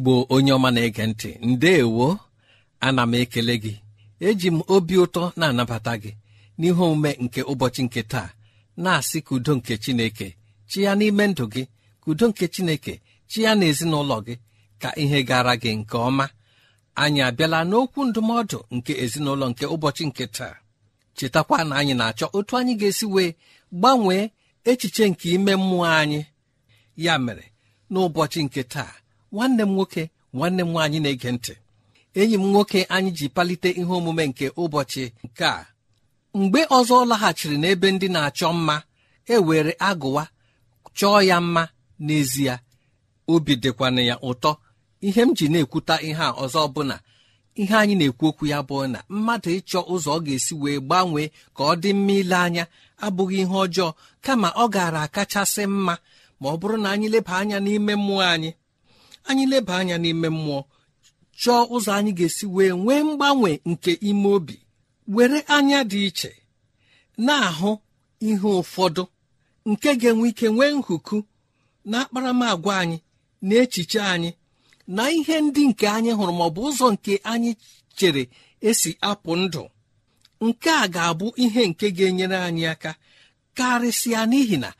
igbo onye ọma na-ege ntị ndeewo ana m ekele gị eji m obi ụtọ na-anabata gị n'ihe omume nke ụbọchị nke taa na-asị ka udo nke chineke chịa n'ime ndụ gị ka udo nke chineke chịa na ezinụlọ gị ka ihe gara gị nke ọma anyị abịala n'okwu ndụmọdụ nke ezinụlọ nke ụbọchị nke taa chetakwa na anyị na-achọ otu anyị ga-esi wee gbanwee echiche nke ime mmụọ anyị ya mere n'ụbọchị nke taa nwanne m nwoke nwanne m nwaanyị na-ege ntị enyi m nwoke anyị ji palite ihe omume nke ụbọchị nke a mgbe ọzọ ọ laghachiri n'ebe ndị na-achọ mma e were agụwa chọọ ya mma n'ezie obi dịkwana ya ụtọ ihe m ji na-ekwuta ihe a ọzọ bụ ihe anyị na-ekwu okwu ya bụ na mmadụ ịchọ ụzọ ọ ga-esi wee gbanwee ka ọ dị mma ile anya abụghị ihe ọjọọ kama ọ gaara akachasị mma ma ọ bụrụ na anyị leba anya n'ime mmụọ anyị anyị leba anya n'ime mmụọ chọọ ụzọ anyị ga-esi wee nwee mgbanwe nke ime obi were anya dị iche na-ahụ ihe ụfọdụ nke ga-enwe ike nwee nhuku na akparamagwa anyị na echiche anyị na ihe ndị nke anyị hụrụ ma ọ bụ ụzọ nke anyị chere esi apụ ndụ nke a ga-abụ ihe nke ga-enyere anyị aka karịsịa n'ihi na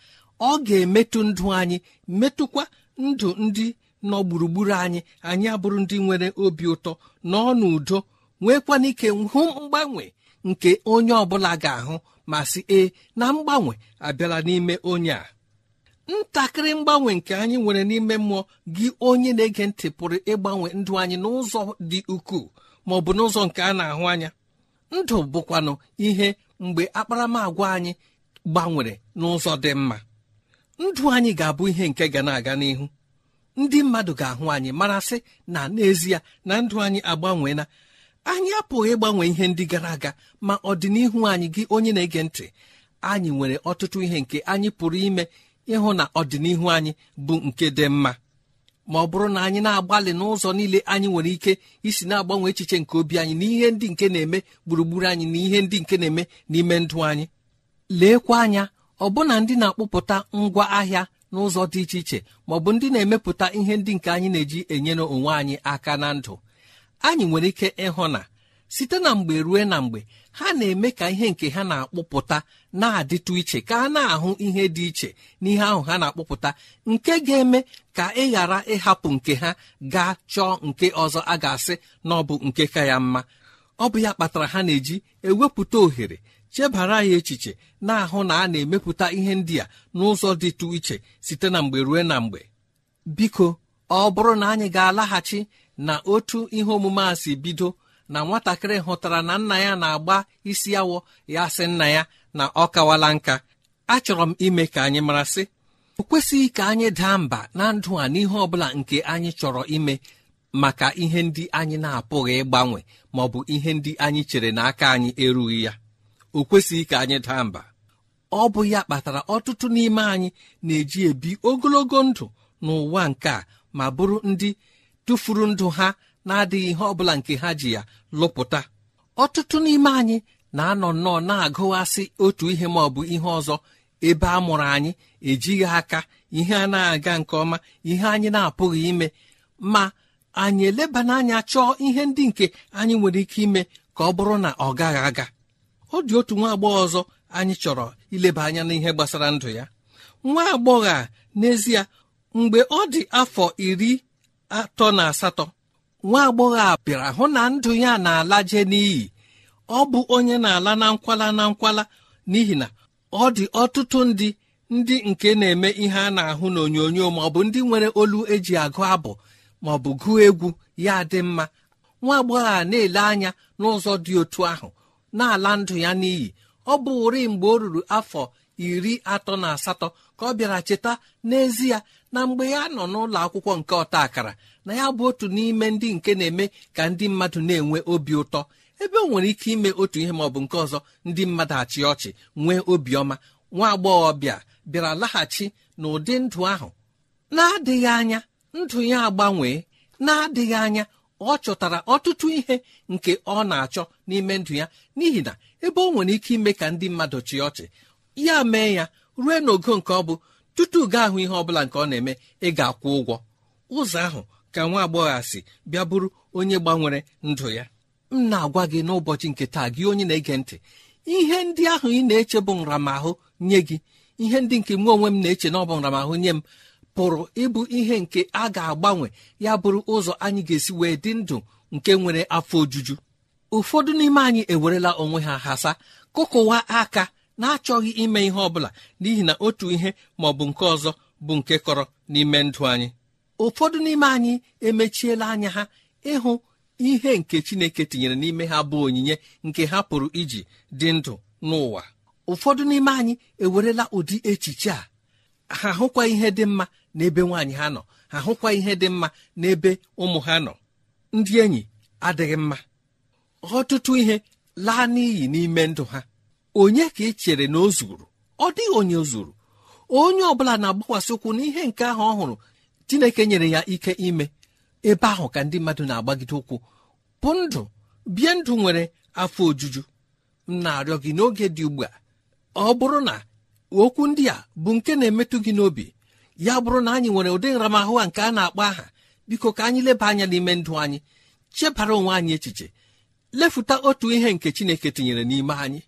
ọ ga-emetụ ndụ anyị metụkwa ndụ ndị nọ gburugburu anyị anyị abụrụ ndị nwere obi ụtọ nọ n'udo nweekwana ike hụ mgbanwe nke onye ọbụla ga-ahụ ma sị ee na mgbanwe abịala n'ime onye a ntakịrị mgbanwe nke anyị nwere n'ime mmụọ gị onye na-ege ntị pụrụ ịgbanwe ndụ anyị n'ụzọ dị ukwuu ma ọ bụ n'ụzọ nke a na-ahụ anya ndụ bụkwanụ ihe mgbe akparamagwa anyị gbanwere n'ụzọ dị mma ndụ anyị ga-abụ ihe nke ga na-aga n'ihu ndị mmadụ ga-ahụ anyị marasị na n'ezie na ndụ anyị agbanweela anyị apụghị ịgbanwe ihe ndị gara aga ma ọdịnihu anyị gị onye na-ege ntị anyị nwere ọtụtụ ihe nke anyị pụrụ ime ịhụ na ọdịnihu anyị bụ nke dị mma ma ọ bụrụ na anyị na-agbalị n'ụzọ niile anyị nwere ike isi na-agbanwe echiche nke obi anyị na ihe ndị nke na-eme gburugburu anyị na ihe ndị nke na-eme n'ime ndụ anyị leekwa anya ọbụna ndị na-akpụpụta ngwa ahịa n'ụzọ dị iche iche ma ọ bụ ndị na-emepụta ihe ndị nke anyị na-eji enyere onwe anyị aka na ndụ anyị nwere ike ịhụ na site na mgbe rue na mgbe ha na-eme ka ihe nke ha na-akpụpụta na-adịtụ iche ka a na-ahụ ihe dị iche n'ihe ahụ ha na-akpụpụta nke ga-eme ka ị ghara ịhapụ nke ha gaa chọọ nke ọzọ a ga-asị na ọ bụ nke ka ya mma ọ bụ ya kpatara ha na-eji ewepụta ohere chebara ya echiche na-ahụ na a na-emepụta ihe ndị a n'ụzọ dịtụ iche site na mgbe ruo na mgbe biko ọ bụrụ na anyị ga-alaghachi na otu ihe omume a si bido na nwatakịrị hụtara na nna ya na-agba isi awọ ya sị nna ya na ọ kawala nka achọrọ m ime ka anyị mara sị o kwesịghị ka anyị daa mba na ndụ a n'ihe ọ bụla nke anyị chọrọ ime maka ihe ndị anyị na-apụghị ịgbanwe ma ọ bụ ihe ndị anyị chere na aka anyị erughị ya o kwesịghị ka anyị daa mba ọ bụ ya kpatara ọtụtụ n'ime anyị na-eji ebi ogologo ndụ n'ụwa nke a ma bụrụ ndị tụfuru ndụ ha na-adịghị ihe ọ bụla nke ha ji ya lụpụta ọtụtụ n'ime anyị na-anọ nnọọ na-agụghasị otu ihe ma ọ bụ ihe ọzọ ebe a mụrụ anyị ejighị aka ihe a na-aga nke ọma ihe anyị na-apụghị ime ma anyị eleba n'anya chọọ ihe ndị nke anyị nwere ike ime ka ọ bụrụ na ọ gaghị aga ọ dị otu nwa agbọghọ ọzọ anyị chọrọ ileba anya n'ihe gbasara ndụ ya nwa agbọghọ a n'ezie mgbe ọ dị afọ iri atọ na asatọ nwa agbọghọ a bịara hụ na ndụ ya na jee n'iyi ọ bụ onye na-ala na nkwala na nkwala n'ihi na ọ dị ọtụtụ ndị ndị nke na-eme ihe a na-ahụ n'onyonyo onyonyo ọ bụ ndị nwere olu eji agụ abụ maọbụ gụọ egwu ya dị mma nwa agbọghọ a na-ele anya n'ụzọ dị otu ahụ na-ala ndụ ya n'iyi ọ ụri mgbe o ruru afọ iri atọ na asatọ ka ọ bịara cheta n'ezie na mgbe ya nọ n'ụlọ akwụkwọ nke ọta akara na ya bụ otu n'ime ndị nke na-eme ka ndị mmadụ na-enwe obi ụtọ ebe ọ nwere ike ime otu ihe ma ọ bụ nke ọzọ ndị mmadụ achị ọchị nwee obiọma nwa agbọghọbịa bịara laghachi na ụdị ndụ ahụ na-adịghị anya ndụ ya agbanwee na-adịghị anya ọ chọtara ọtụtụ ihe nke ọ na-achọ n'ime ndụ ya n'ihi na ebe ọ nwere ike ime ka ndị mmadụ chịa ọchị ya mee ya rue n'ogo nke ọ bụ tutu gaa ahụ ihe ọ bụla nke ọ na-eme ị ga-akwụ ụgwọ ụzọ ahụ ka nwa agbọghọ asị si bịa bụrụ onye gbanwere ndụ ya m na-agwa gị n'ụbọchị nke taa gị onye na-ege ntị ihe ndị ahụ ị na-eche bụ nramahụ nye gị ihe ndị nke nwa onwe m na-eche na ọ bụ nramahụ nye m pụrụ ịbụ ihe nke a ga-agbanwe ya bụrụ ụzọ anyị ga-esi wee dị ndụ nke nwere afọ ojuju ụfọdụ n'ime anyị ewerela onwe ha hasa kụkụwa aka na-achọghị ime ihe ọ bụla n'ihi na otu ihe ma ọ bụ nke ọzọ bụ nke kọrọ n'ime ndụ anyị ụfọdụ n'ime anyị emechiela anya ha ịhụ ihe nke chineke tinyere n'ime ha bụ onyinye nke ha pụrụ iji dị ndụ n'ụwa ụfọdụ n'ime anyị ewerela ụdị echiche a ha hụkwa ihe dị mma n'ebe nwaanyị ha nọ ha hụkwa ihe dị mma n'ebe ụmụ ha nọ ndị enyi adịghị mma ọtụtụ ihe laa n'iyi n'ime ndụ ha onye ka ị chere na o zuru ọ dịghị onye zuru onye ọ bụla na-agbakwasị ụkwụ n'ihe nke ahụ ọ hụrụ chineke nyere ya ike ime ebe ahụ ka ndị mmadụ na-agbagide ụkwụ bụ ndụ bie ndụ nwere afọ ojuju m na-arịọ gị n'oge dị ugbu a ọ bụrụ na okwu ndị a bụ nke na-emetụ gị n'obi ya bụrụ na anyị nwere ụdị nramahụ a nke a na-akpọ aha biko ka anyị leba anya n'ime ndụ anyị chebara onwe anyị echiche lefuta otu ihe nke chineke tinyere n'ime anyị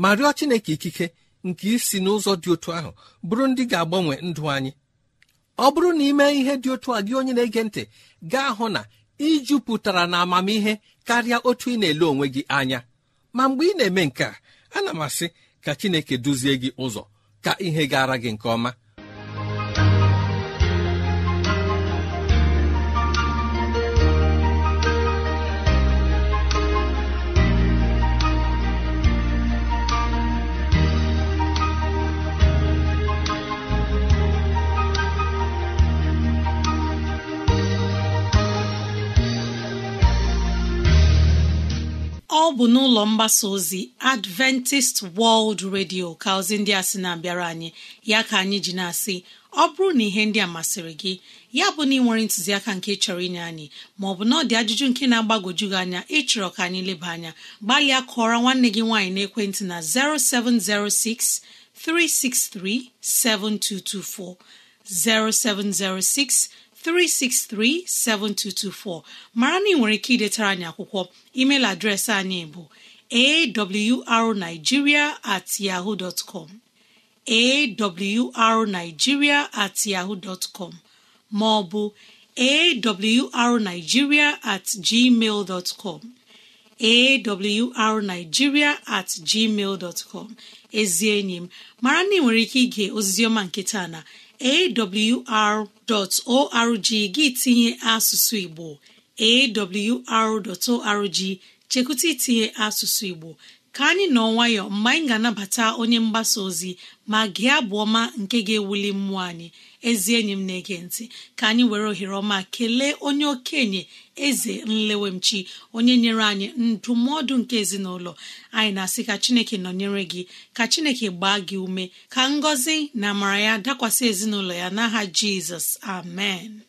ma rịọ chineke ikike nke isi n'ụzọ dị otu ahụ bụrụ ndị ga-agbanwe ndụ anyị ọ bụrụ na ime ihe dị otu a gị onye na-ege ntị gaa hụ na ijupụtara na amamihe karịa otu ị na-ele onwe gị anya ma mgbe ị na-eme nke a ana m asị ka chineke duzie gị ụzọ ka ihe gara gị nke ọma ọ bụ n'ụlọ mgbasa ozi adventist world radio ka ozi ndị a sị na-abịara anyị ya ka anyị ji na-asị ọ bụrụ na ihe ndị a masịrị gị ya bụ na ị nwere ntụziaka nke chọrọ inye anyị maọbụ na ọ dị ajụjụ nke na-agbagwoju gị anya ịchọrọ ka anyị leba anya gbalịa kụọrọ nwanne gị nwaanyị n'ekwentị na 0706 363 7224 0706 363-7224 mara na ị nwere ike idetara anyị akwụkwọ email adreesị anyị bụ arigiria at at maọbụ ma ọ bụ at gmail dot com at gmail dot com enyi m mara na ị nwere ike ige ọma nke taa na awr.org gị tinye asụsụ Igbo awr.org chekwụta itinye asụsụ Igbo ka anyị nọ nwayọ mgbe anyị ga-anabata onye mgbasa ozi ma gị abụ ọma nke ga-ewuli mmụọ anyị ezi enyi m na-ege ntị ka anyị were ohere ọma kelee onye okenye eze nlewemchi onye nyere anyị ndụmọdụ nke ezinụlọ anyị na-asị ka chineke nọnyere gị ka chineke gbaa gị ume ka ngọzi na amara ya dakwasị ezinụlọ ya n'aha jizọs amen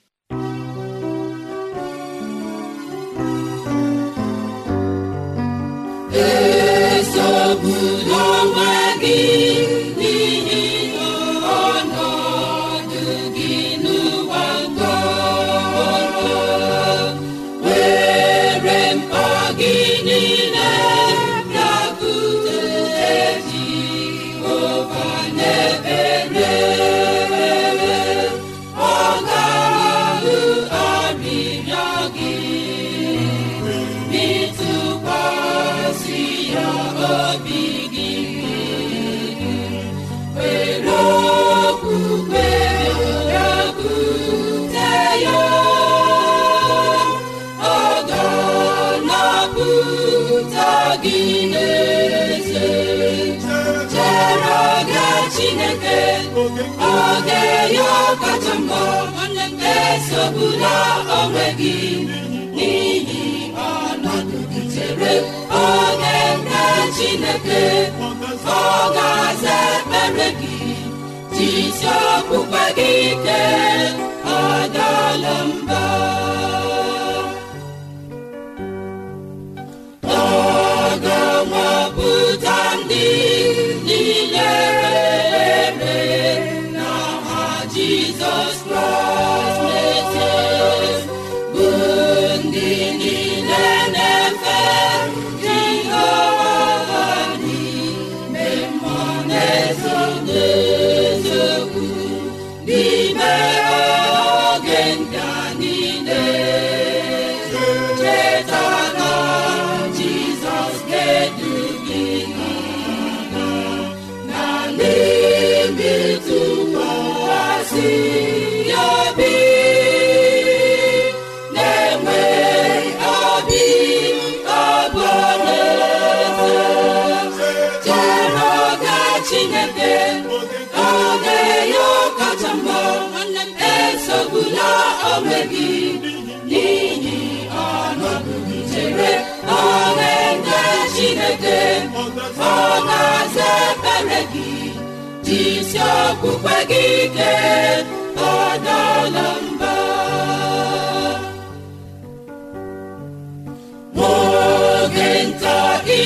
esogbula onwe gị n'ihi ọnọdụ gị chere oge nke Chineke ọ ga-aza ekpere gị jisie okwukwe gị ike egbula onwe gị n'ihi ọnọdụ chere onwe nne chineke ọ ekpere gị jisi okpukpe gị ike ọdala mba n'oge nta ị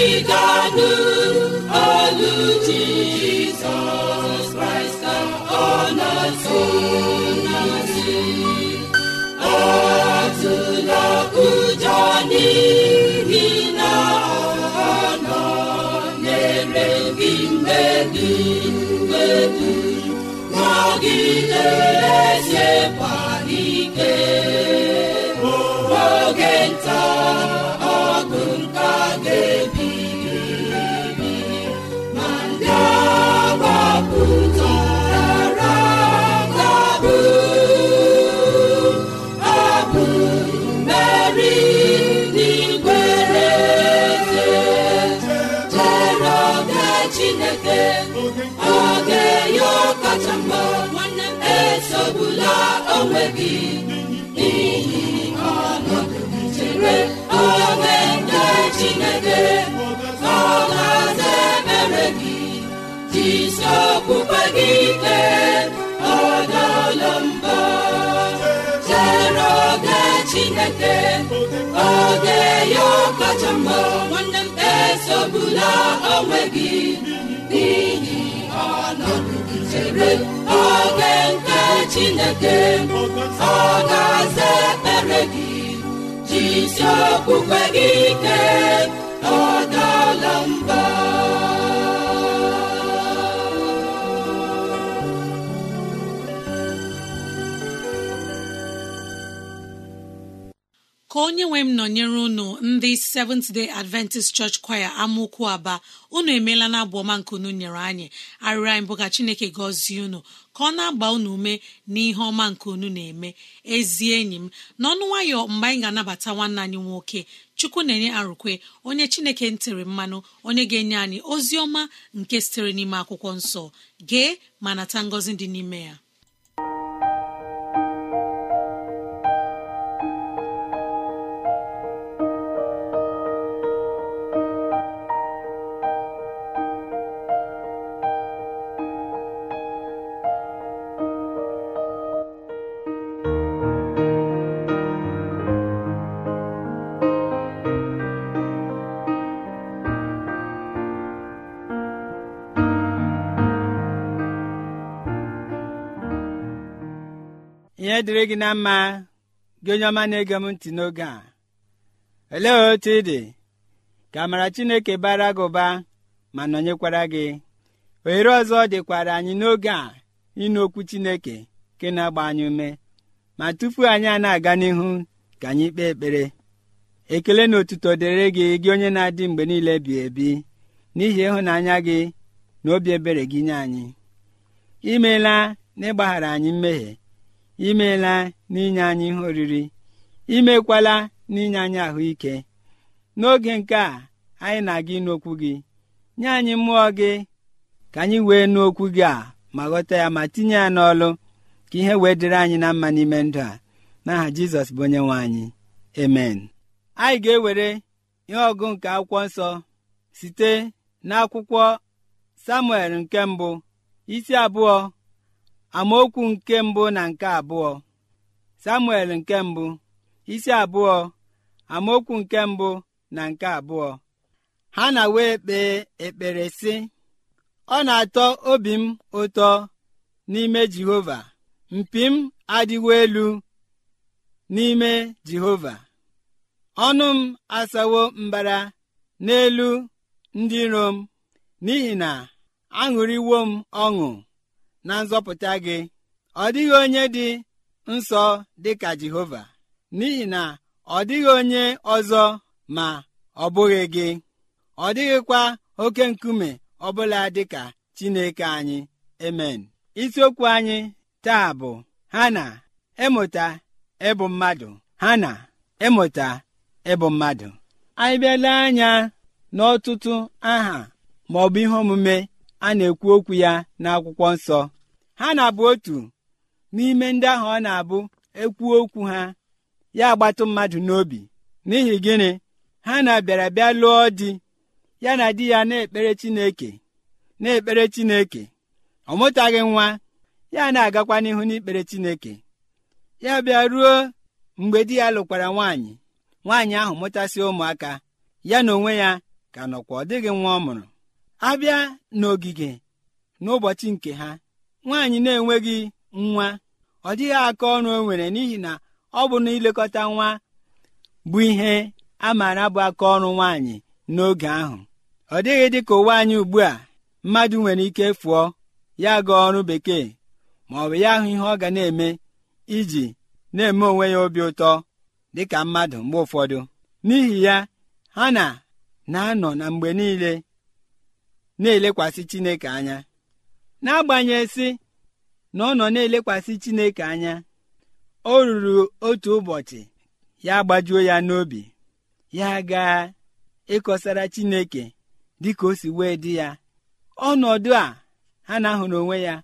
megidere eze kpara oge nta onwe gị n'ihi ọnụ chere onwe nke Chineke ọ na-aza ebere gị jisi okpukpe gị ike ọ dọọla mba chere oge Chineke oge ya kacha mma nwanne m esogbula onwe gị n'ihi ọnọdụ chere chineke ọ ga-aza ekpere gị jisi okwukwe gị ike ọ dala mba ka onye nwe m nọnyere unu ndị seventh day adventist church choir amaokwu aba unu emeela na ọma nke unu nyere anyị arịrị anyị bụ ka chineke gọzie unu ka ọ na-agba unu ume n'ihe ọma nke unu na-eme ezi enyi m n'ọnụ nwayọ mgbe anyị ga-anabata nwanne anyị nwoke chukwu na-enye arụkwe onye chineke ntịrị mmanụ onye ga-enye anyị ozi ọma nke sitere n'ime akwụkwọ nsọ gee ma nata ngọzi dị n'ime ya ihe dịrị gị na mma gị onye ọma na-ege m ntị n'oge a olee otu ị dị ka amara chineke bara gị ụba ma nọnyekwara gị ohere ọzọ dịkwara anyị n'oge a ịnụ okwu chineke nke na-agba anyị ume ma tupu anyị a na-aga n'ihu ka anyị kpee ekpere ekele na otuto dịrị gị gị onye na-adị mgbe niile bi ebi n'ihi ịhụnanya gị na obi ebere gị nye anyị imeela na ịgbaghara anyị mmehie imeela n'inye anyị ihe oriri imekwala n'inye anyị ahụike n'oge nke a anyị na-aga ịnụ gị nye anyị mmụọ gị ka anyị wee nụ okwu gị a ma ghọta ya ma tinye ya n'ọlụ ka ihe wee dịrị anyị na mma n'ime ndụ a n'aha jizọs bụ onye nwe anyị emen anyị ga-ewere ihe ọgụ nke akwụkwọ nsọ site n'akwụkwọ samuel nke mbụ isi abụọ amaokwu nke mbụ na nke abụọ samuel nke mbụ isi abụọ amaokwu nke mbụ na nke abụọ ha na wee kpee ekpere sị ọ na-atọ obi m ụtọ n'ime jehova mpi m adịwo elu n'ime jehova ọnụ m asawo mbara n'elu ndị iro m n'ihi na aṅụrịwo m ọṅụ na nzọpụta gị ọ dịghị onye dị nsọ dị ka jehova n'ihi na ọ dịghị onye ọzọ ma ọ bụghị gị ọ dịghịkwa oke nkume ọbụla dị ka chineke anyị emen isiokwu anyị taa bụ ha na ịmụta ịbụ mmadụ ha na ịmụta ịbụ mmadụ anyị bịala anya n'ọtụtụ aha ma bụ ihe omume a na-ekwu okwu ya n'akwụkwọ nsọ ha na-abụ otu n'ime ndị ahụ ọ na-abụ ekwuo okwu ha ya agbatụ mmadụ n'obi n'ihi gịnị ha na-abịara bịa lụọ di ya na di ya na-ekpere chineke na-ekpere chineke ọ mụtaghị nwa ya na-agakwa n'ihu n'ikpere chineke ya bịa ruo mgbe di ya lụkwara nwaanyị nwaanyị ahụ mụtasị ụmụaka ya na onwe ya ka nọkwa ọ dịghị nwa ọ mụrụ abịa n'ogige n'ụbọchị nke ha nwaanyị na-enweghị nwa ọ dịghị aka ọrụ o nwere n'ihi na ọ bụ na ilekọta nwa bụ ihe a maara bụ aka ọrụ nwaanyị n'oge ahụ ọ dịghị dị ka ụwa anyị ugbu a mmadụ nwere ike fụọ ya gaa ọrụ bekee ma ọ bụ ya ahụ ihe ọ ga na-eme iji na-eme onwe ya obi ụtọ dịka mmadụ mgbe ụfọdụ n'ihi ya ha na na-anọ na mgbe niile na-elekwasị Chineke anya n'agbanyeghị na ọ nọ na-elekwasị Chineke anya o ruru otu ụbọchị ya gbajuo ya n'obi ya gaa ịkọsara Chineke dịka o si wee dị ya ọnọdụ a ha na-ahụrụ onwe ya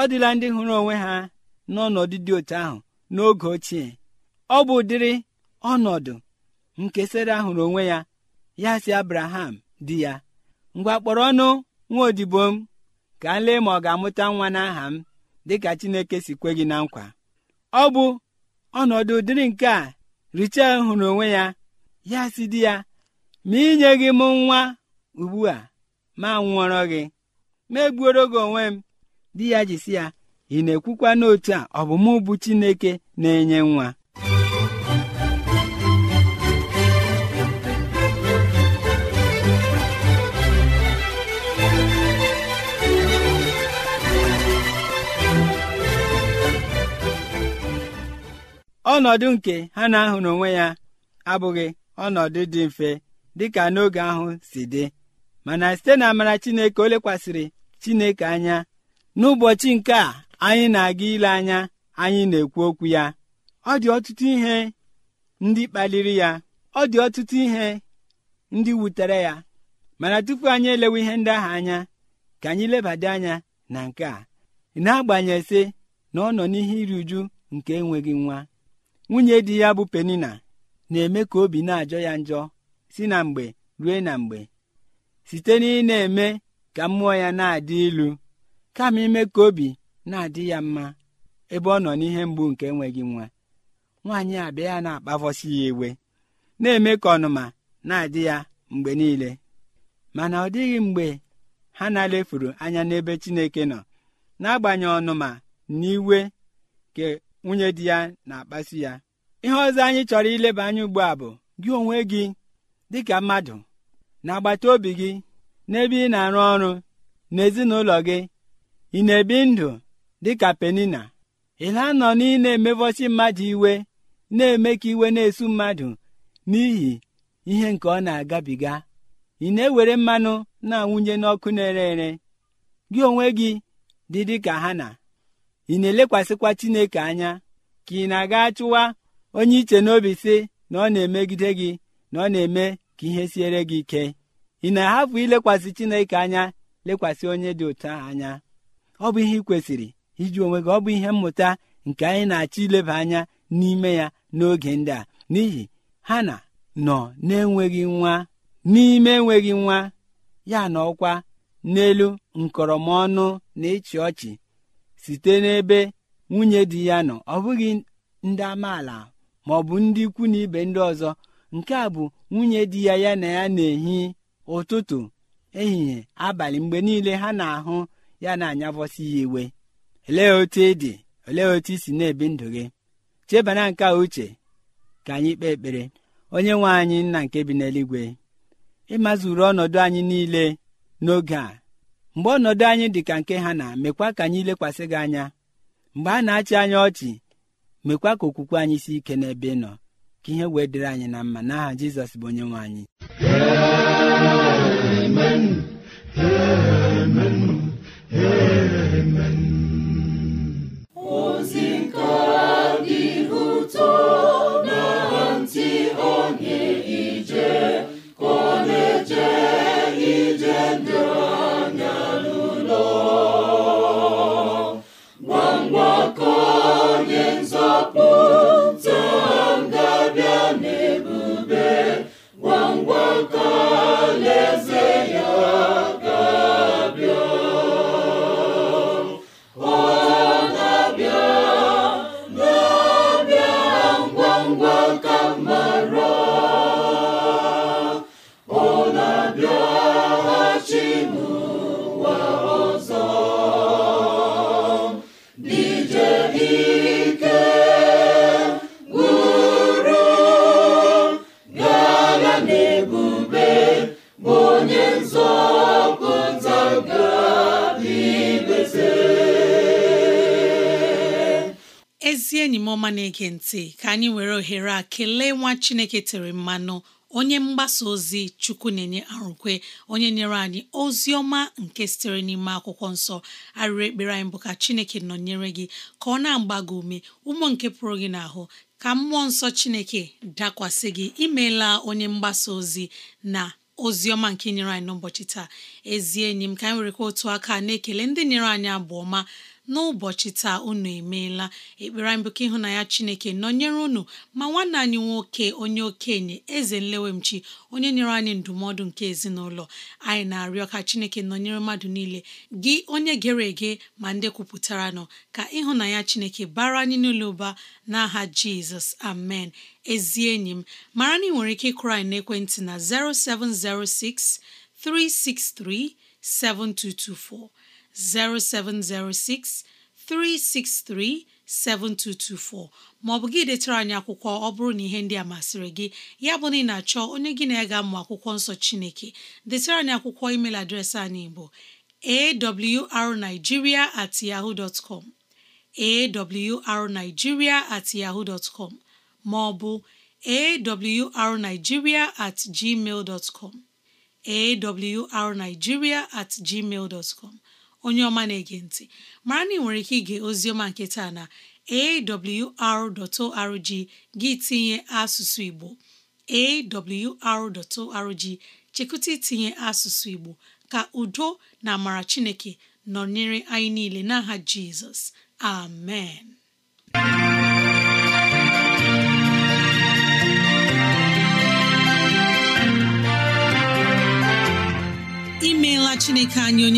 ọ dịla ndị hụrụ onwe ha n'ọnọdụ dị otu ahụ n'oge ochie ọ bụ ụdịrị ọnọdụ nke ahụrụ onwe ya ya si Abraham di ya ngwa kpọrọ ọnụ nwa odibo m ka lee ma ọ ga-amụta nwa n'aha m dịka Chineke si kwe gị na nkwa ọ bụ ọnọdụ ụdịrị nke a Richel hụrụ onwe ya ya si di ya ma inye gị m nwa ugbu a ma nwụọrọ gị ma egbuoro gị onwe m di ya jisi ya ị na-ekwukwa n'otu a ọ bụ mụ bụ Chineke na-enye nwa ọnọdụ nke ha na-ahụrụ onwe ya abụghị ọnọdụ dị mfe dịka n'oge ahụ si dị mana site na amara Chineke o lekwasịrị Chineke anya n'ụbọchị nke a anyị na-aga ile anya anyị na-ekwu okwu ya ọ dị ọtụtụ ihe ndị kpaliri ya ọ dị ọtụtụ ihe ndị wutere ya mana tupu anyị elewe ihe ndị ahụ anya ka anyị lebada anya na nke a na sị na ọ nọ n'ihe iri uju nke enweghị nwa nwunye di ya bụ penina na-eme ka obi na-ajọ ya njọ si na mgbe rue na mgbe site na ị na-eme ka mmụọ ya na-adị ilu kama ime ka obi na-adị ya mma ebe ọ nọ n'ihe mgbu nke enweghị nwa nwaanyị abịa ya na-akpavọsi ya iwe na-eme ka ọnụma na-adị ya mgbe niile mana ọ dịghị mgbe ha na-alefuru anya n'ebe Chineke nọ n'agbanyeghị ọnụma na iwe nwunye di ya na-akpasu ya ihe ọzọ anyị chọrọ ileba anya ugbu a bụ gị onwe gị dịka mmadụ na agbata obi gị n'ebe ị na-arụ ọrụ n'ezinụlọ gị ị na-ebi ndụ dịka penina ịla nọ na ị na-emevọsi mmadụ iwe na-eme ka iwe na-esu mmadụ n'ihi ihe nke ọ na-agabiga ị na-ewere mmanụ na-awụnye n'ọkụ na-ere ere gị onwe gị dị dịka ha na ị na-elekwasịkwa chineke anya ka ị na-aga chụwa onye iche n'obi si na ọ na-emegide gị na ọ na-eme ka ihe siere gị ike ị na-ahapụ ilekwasị chineke anya lekwasị onye dị otu anya ọ bụ ihe ị kwesịrị iji onwe gị ọ bụ ihe mmụta nke anyị na-achọ ileba anya n'ime ya n'oge ndị a n'ihi na nọ na-enweghị nwa n'ime enweghị nwa ya na ọkwa n'elu nkọrọmọnụ na ịchị ọchị site n'ebe nwunye di ya nọ ọ bụghị ndị amaala ma ọ bụ ndị ikwu na ibe ndị ọzọ nke a bụ nwunye di ya ya na ya na-ehi ụtụtụ ehihie abalị mgbe niile ha na-ahụ ya na-anyabọsi ya iwe olee otu ị dị olee otu i si na-ebi ndụ gị chebana nke uche ka anyị kpee ekpere onye nwe anyị nna nke bi n'eluigwe ịmazuru ọnọdụ anyị niile n'oge a mgbe ọnọdụ anyị dị ka nke ha na mekwa ka anyị lekwasị gị anya mgbe ha na-achị anyị ọchị mekwa ka okwukwe anyị si ike n'ebe ị nọ ka ihe wee dịrị anyị na mma n'aha jizọs bụ onye nwe anyị ezi enyi m ọma na-ege ntị ka anyị were ohere a kelee nwa Chineke tere mmanụ onye mgbasa ozi chukwu na-enye arụkwe onye nyere anyị ozi ọma nke sitere n'ime akwụkwọ nsọ arịrị ekpere anyị bụ ka chineke nọnyere gị ka ọ na-agba gị ume ụmụ nke pụrụ gị n'ahụ ka mmụọ nsọ chineke dakwasị gị imeela onye mgbasa ozi na ozi ọma nke nyere anyị n'ụbọchị taa ezi enyi m ka anyị werekwa otu aka na-ekele ndị nyere anyị abụ ọma n'ụbọchị taa unu emeela ekpere anyị bụ Chineke nọnyere unu ma nwanne anyị nwoke onye okenye eze nlewemchi onye nyere anyị ndụmọdụ nke ezinụlọ anyị na-arịọ ka Chineke nọnyere mmadụ niile gị onye gere ege ma ndị kwupụtara nọ ka ịhụnanya Chineke bara anyị n'ụlọ ụba n'aha Jizọs amen ezi enyi m mara na ị nwere ike ịkụrụ anyị n'ekwentị na 0706 363 7224 0706 363 7224 maọbụ gị detara anyị akwụkwọ ọ bụrụ na ihe ndị a masịrị gị ya bụ na ị na-achọ onye gị na ya ga akwụkwọ nsọ Chineke detara anyị akwụkwọ email adreesị anyị bụ arigiria at yahoo dot com awrnigeria at yahoo com maọbụ awrnigeria at gmail dot com awrnigeria at gmail com onye ọma na-ege ntị mara na ị nwere ike ige ozioma nke taa na awr.org gị tinye asụsụ Igbo awr.org chekụta itinye asụsụ Igbo ka udo na amara Chineke nọnyere anyị niile n'aha Jizọs amen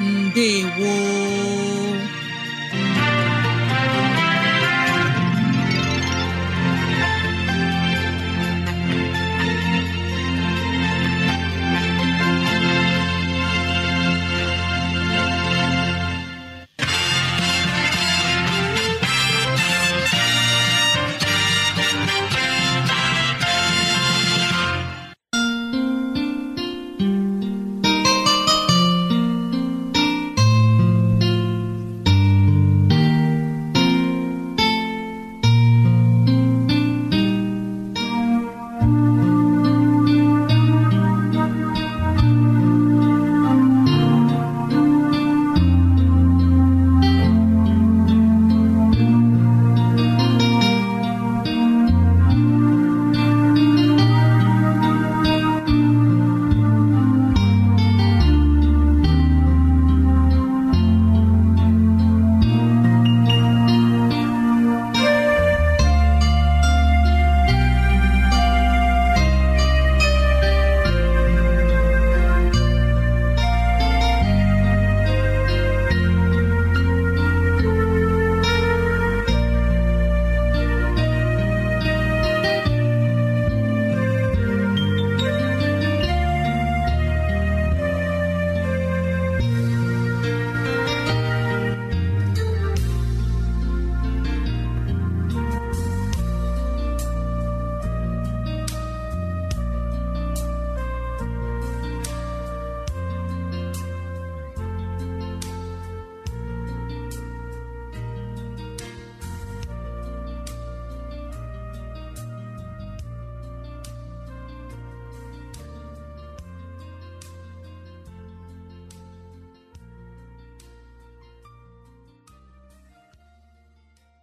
ndewo